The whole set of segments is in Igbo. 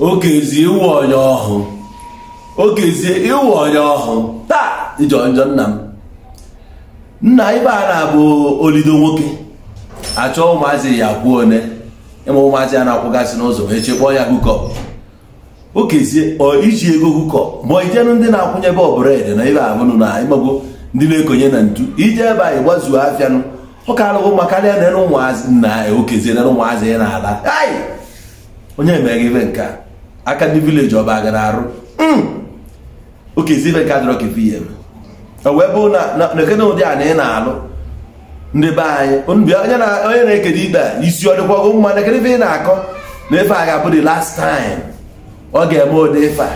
okezie ịwụ onye ọhụụ okezie ịwụ onye ọhụụ taa ijọ njọ nna m nna ibe a na-abụ olido nwoke achọọ ụmụazị ya kwuo one ịma ụmụazị ya na-akwụgasị n'ụzọ wee chekpọọ ya hukọp okezie iji ego hukọp ma ijenụ ndị na-akwụnye bọbụredị na ibe abụnụ na ịmago ndị na-ekonye na ntu ije ebe anyị gbazuo afịanụ ụka alụghụ ma karịa na ụmụazị nna ya okezie na ụmụazị ya na-ala onye mere ibe nke a aka ndị vileji ọba gara arụ hmm. okezibe nke adịrọ kefe ihe wee bụ na ekene ụdị a na ị na-alụ ndị be anyị onye na-ekede ikpe a isi ọ dịkwago mma na ekene ị na-akọ na efe a ga-abụ the last time ọ ga-eme ụdị ife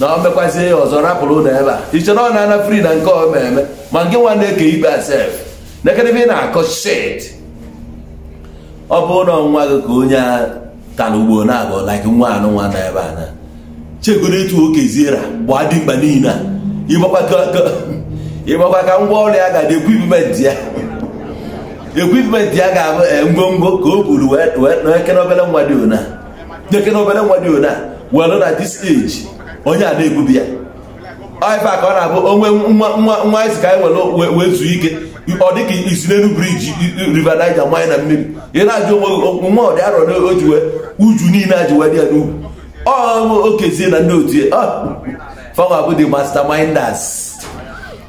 na ọ mekwazie ya ọzọ rapụrụ ụlọ ebe a iche na ọ na-ana fri na nke ọ eme ma nke nwa na-eke ikpe asef na ekene ị na-akọ shit ọ bụ na ọnwa gị ka onye taa na ugbo na nwa anụ nwa na ebe a chegoro etu oke ziera gbaa dimkpa niile ịgbakwa ka ngwa ọrụ ya ga-adị ekwipment ya ekwipment ya ga-abụ ngwongwo ka o buru n'ekere obere nwa dị ona were na dis eji onye a na-ebubi ya ife ka ọ na-abụ onwe nwa isi ka anyị e nwere wee zuo ike ọ dịka isi n'elu briji river Niger mmanya na mmiri ị na-ajụ onwe nwa ọ dị arọ o wee uju niile a wee dị ya n'ugwu ọ okezie na ndị otu ya fanwa bụ the masterminders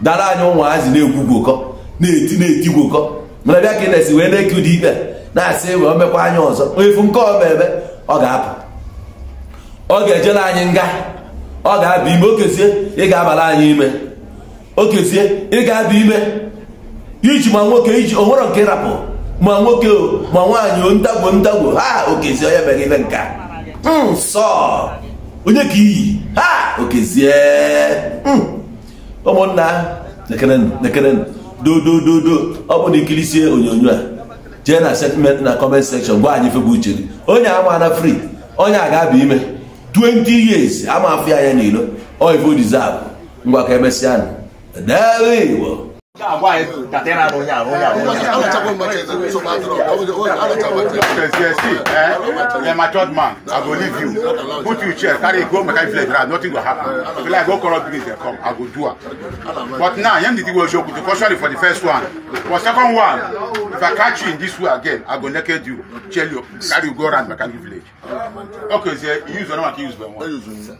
dara anyị ụmụazị na-egwu gwokọ na-eti na-eti gwokọ mana bịa ka ị na-esi wee na-eke ụdị ikpe na-asị e wee mekwa anya ọzọ efu nke ọma ebe ọ ga-apụ ọ ga-ejela anyị nga ọ ga-aba ime okezie ị ga-abala anyị ime okezie ị ga-aba ime iji ma nwoke iji onwere nke ịrapụ ma nwoke ma nwaanyị ndagwo ndagwo ha okezie onye mere ibe nka nsọ hmm, onye ka iyi ha okezie hmm. ụmụnna nekerenụ ọ bụ na ikirisie onyonyo a jee na setment na kọment sekshọn gwa anyị febụ uche onye amaana fri onye a ga-aba ime 20 years ama afọ ya ya n'ilo oivo deserve ngwa ka emesịa na debe igbo You're my third man. I go leave you. Put you chair, carry go make I feel like nothing will happen. If I go corrupt police, they come. I go do it. But now, young did will show you caution for the first one. For second one, if I catch you in this way again, I go naked you, tell you, carry you go around my village. Okay, so use the one I use by one.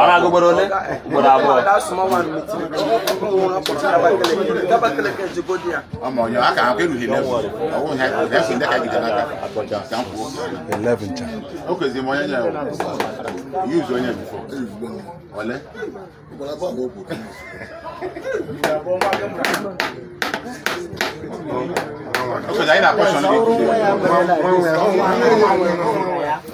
ara gbogbo ne gbogbo abọ. ọmọ yọ aka akpẹ lu eleven ọwọ ha eleven dẹka gidi n'aka kan kú. eleven ta. o kò zi mọ yẹn yẹ o yóò zọ yẹn bifọ ọlẹ. o kò zi ayi na kọsọn ne bi.